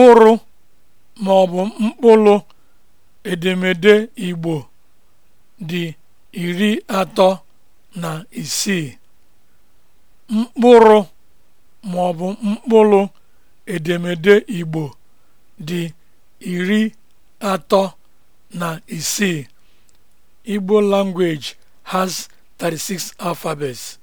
mkpụrụ maọbụ ọ mkpụrụ edemede Igbo dị iri atọ na isii. mkpụrụ edemede Igbo dị iri atọ na isii. Igbo language has 36 alphabets.